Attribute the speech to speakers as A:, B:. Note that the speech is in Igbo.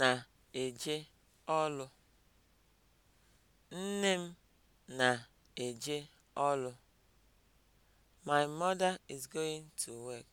A: na-eje ọlụ. Nne m na-eje ọlụ. My mother is going to work.